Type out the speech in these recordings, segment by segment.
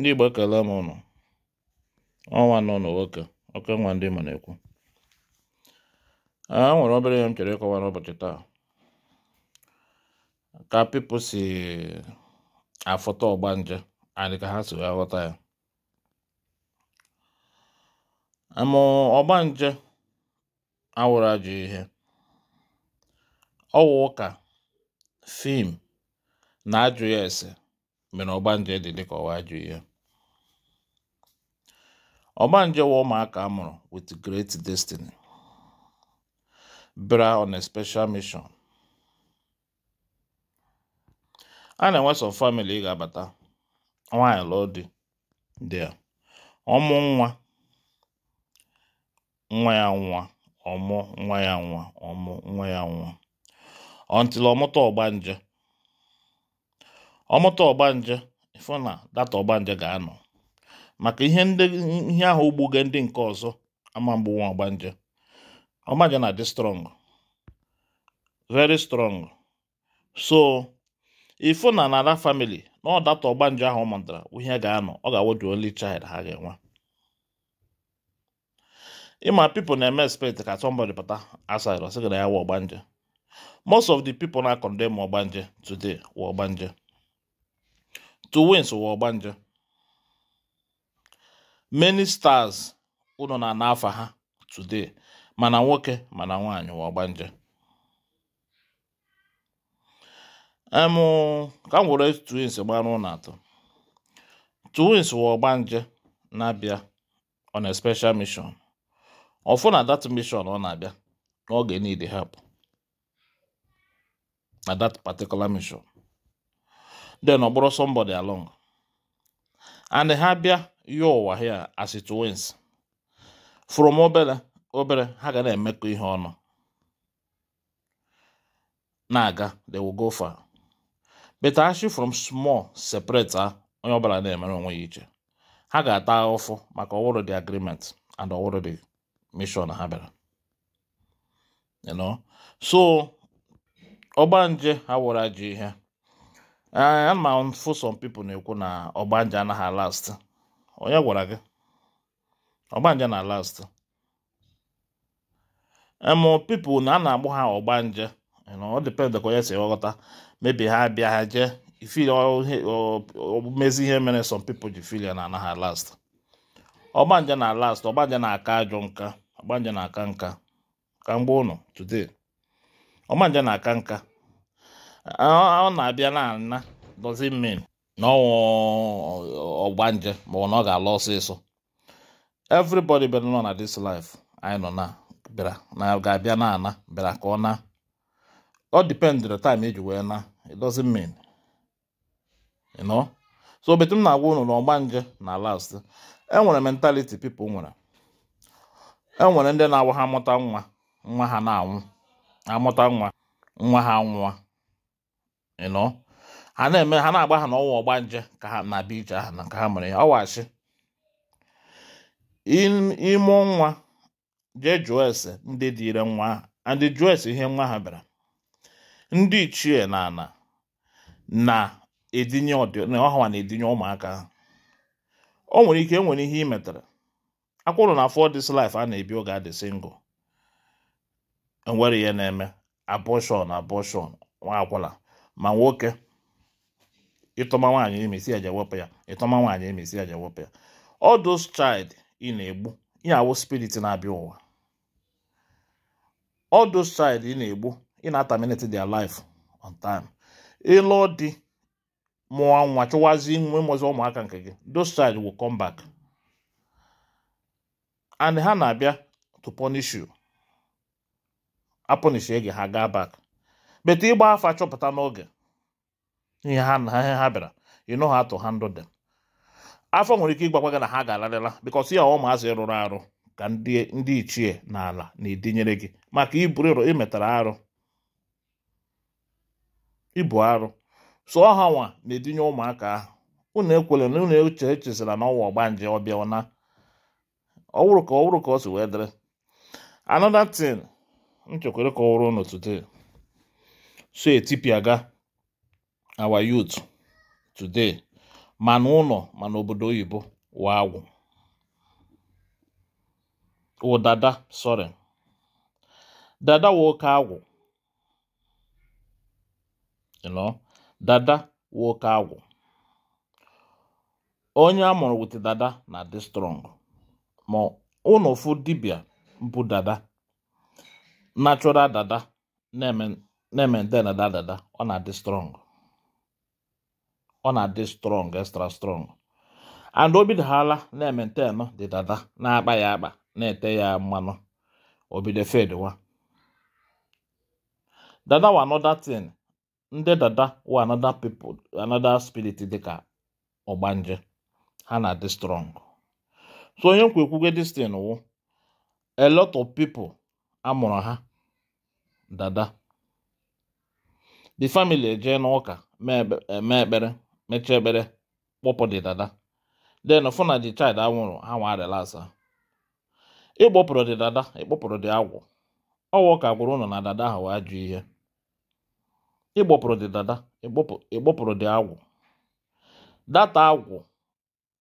ndị Igbo ekele m ụnụ ọnwa nọ n'nwoke oke nwa ndị na-ekwu a ah, nwere obere ihe m chere ịkọwa n'ụbọchị taa ka pipo si afọta ọgbanje adị ka ha si wee ghọta ya ma ọgbanje awụrụ ajọ ihe ọwụ ụka fim na ajụ ya ese mgbe na nje dị dịka ọwa ajụ ya nje wa ụmụaka a mụrụ with great destiny bra on a special mission a na-enwe sọ family ị ga-abata nwaanyị lụọ di dị ọmụ nwa nwa ya nwa ọmụ nwa ya nwa ọmụ nwa ya nwa ọntịla ọmụta nje. ọmụta ọgbanje ịfụ na data ọgbanje ga-anọ maka ihe ihe ahụ ugbuga ndị nke ọzọ ama mgbu nwa ọgbanje ọgbanje na-adị strong very strong so ịfụ na na that family na ọ data ọgbanje ahụ ọ mụtara ihe ga-anọ ọ ga-awụ onye only ha ga-enwe ịma pipo na-eme expect ka somebody pụta aside sị na ya wụ ọgbanje most of the people na-akọndem ọgbanje today wụ ọgbanje to win sụwa ọgbanje many stars ụlọ na na afa ha today mana nwoke mana nwaanyị wa ọgbanje em ka m were twins gbara ụlọ atọ twins wa ọgbanje na-abịa on a special mission ọfụ na that mission ọ na-abịa n'oge need help na dat particular mission then ọ somebody along and ha bịa you ụwa here as twins from obere obere ha ga na-emekọ ihe ọnụ na-aga they will go far but actually from small separate ha ah, onye ọbụla na-emere onwe ya iche ha ga-ata ụfụ maka ọwụrụ the agreement and ọwụrụ the mission ha bịara you know so ọgbanje ha wụrụ ajọ ihe Eh, a ma some people na-ekwu na ọgbanje anaghị ọ onye gwara gị ọgbanje na last emu people na a na-agbụ ha ọgbanje ọ depende ka onye si ghọta mebi ha bịa ha jee ifili mezi ihe mere some people ji ya na anaghị last ọgbanje na last ọgbanje na-aka ajọ nka ọgbanje na-aka nka ka mgbe ụnụ today ọgbanje na-aka nka ọ na-abịa na ana dozi min na ọgbanje ma na ọ ga-ala ọsịsọ everybody bịara nọ na this life anyị nọ na bịara na ga-abịa na ana bịara ka ọ na ọ dipendịrị time eji wee na it doesn't mean you know so betu m na-agwa ụnụ na nje na last enwere mentality pipo nwere enwere ndị na-awa ha amụta nwa nwa ha na-anwụ amụta nwa nwa ha nwa. ịnọ ha na-eme ha na-agba ha n'ọnwa ọgba nje ka ha na bije aha na ka ha mere ya ọwachi ime nwa je jụọ ese ndị dịire nwa ha ndị jụọ ese ihe nwa ha bịara ndị ichie na ana na-edinye ọha na-edinye ụmụaka ha o nwere ike enwere ihe imetara metara akwụrụ na afọ this life a na-ebi oge adị single enwere ihe na-eme abọshọn abọshọn nwa akwụla ma nwoke ịtọma nwaanyị emesi aja wepụ ya ịtọma nwaanyị emesi aja wepụ ya all those child ị na-egbu ị na-awụ spirit na-abịa ụwa all those child ị na-egbu ị na-ataminate their life on time ịlụ dị mụọ nwa chụwazi nwe mụzi ụmụaka nke gị those child will come back and ha na-abịa to punish you apụnish gị ha gaa back bete ịgba afa chọpụta n'oge ihe ha na ihe ha bịara you know how ha ndụ dị afọ nwere ike ịgbakwa gị na ha ga-alarịla bikọs ya ọ maazị rụrụ arụ ka ndị ichie na ala na-edinyere gị maka iburu ịrụ imetara arụ ibu arụ so ha nwa na-edinye ụmụaka ahụ unu ekwere na unu eche echezila na ọnwa ọgbanje ọbịa na ọwụrụ ka ọwụrụ ka ọ si wee dịrị another thing nchekwere ka ọ wụrụ unu so ga our youth today ma n'ụlọ ma n'obodo oyibo wa agwụ ụdada sorry dada wa oke agwụ you dada wa oke agwụ onye a mụrụ wit dada na dị strong ma ụnụ fụ dibia bụ dada natural dada na-eme na-ementena dadada ọ na-adị strong ọ na-adị strong extra strong and o bidohala na nọ dị dada na-akpa ya akpa na-ete ya mmanụ obido fedwa dada wa another thing ndị dada wa another people another spirit dịka ọgbanje ha na-adị strong so onye nkwa ekwugo this thing wụ a lot of people amụrụ ha dada the family ejee n'ụka eh, mee ekpere mechaa ekpere kpọpụ di dada then fụ na the child anwụrụ ha nwa relasa ịgbọpụrụ di dada ịkpọpụrụ di agwụ ọwụ ka gwụrụ ụnụ na dada ahụ wee jụ ihe ịgbọpụrụ di dada ịgbọpụrụ di agwụ data agwụ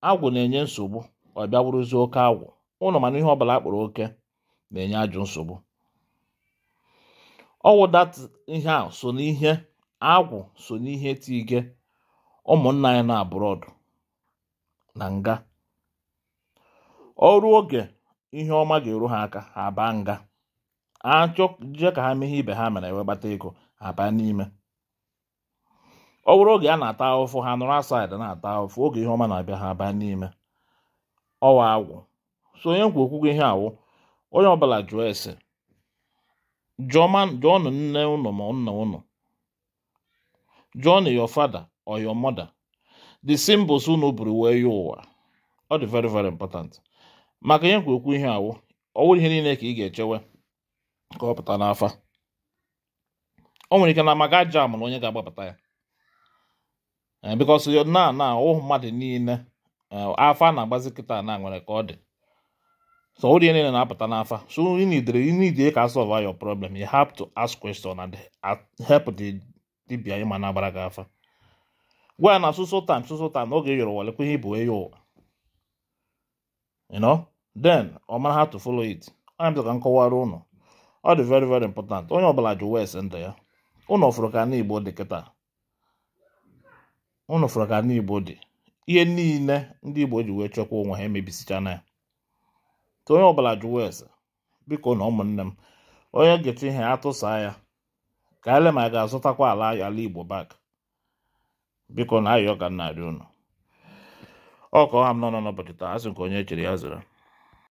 agwụ na-enye nsogbu ọ bịa bụrụzie oke agwụ ụnụ mana ihe ọbụla akpọrọ oke na-enye ajụ nsogbu ọwụ dat ihe a so n'ihe agwụ so n'ihe tige ụmụnna anyị na abroad na nga ọrụ oge ihe ọma ga-eru ha aka ha baa nga achọjee ka ha mee ihe ibe ha mere ewe gbata ego ha baa n'ime ọ bụrụ oge a na-ata ahụfụ ha nụrụ asaid na-ata ahụfụ oge ihe ọma na-abịa ha baa n'ime ọwa agwụ so onye nkwu okwugo ihe awụ onye ọbụla jụọ ese jụọnụ nne unu ma nna unu jụọnụ your father or your mother the symbols unu buru wee ya ọ dị very very important maka ihe kwekwu ihe awụ ọwụrụ ihe niile ka ị ga-echewe ka ọ pụta n'afa o nwere ike na maka aja amụrụ onye ga-agbapụta ya eh, because na na mmadụ niile eh, afọ a na-agbazi kịta na nwere ka ọ dị so somebody na na-apụta n'afa so you need you need ka solve your problem you have to ask question and help the dibia ịma na-agbara gị afa gwa ya na soso time soso time n'oge yọrọ wale kwe ihe bụ enyi ụwa you know then ọ mara how to follow it anya ka m kọwara ụnụ ọ dị very very important onye ọbụla ji wes ndụ ya ụnụ fụrụ ka n'igbo dị kịta ụnụ fụrụ ka n'igbo dị ihe niile ndị igbo ji wee chekwa onwe ha emebisichana ya ka onye ọbụla jụwa ese biko na ụmụnne m onye ga-eti ihe atụsa ya ka ele ma ga-azụtakwa ala ala igbo bak biko na ayọ ka nna adị unu ọ ka ọha m nọ n'ụbọchị taa asị nke onye echere ya zụrụ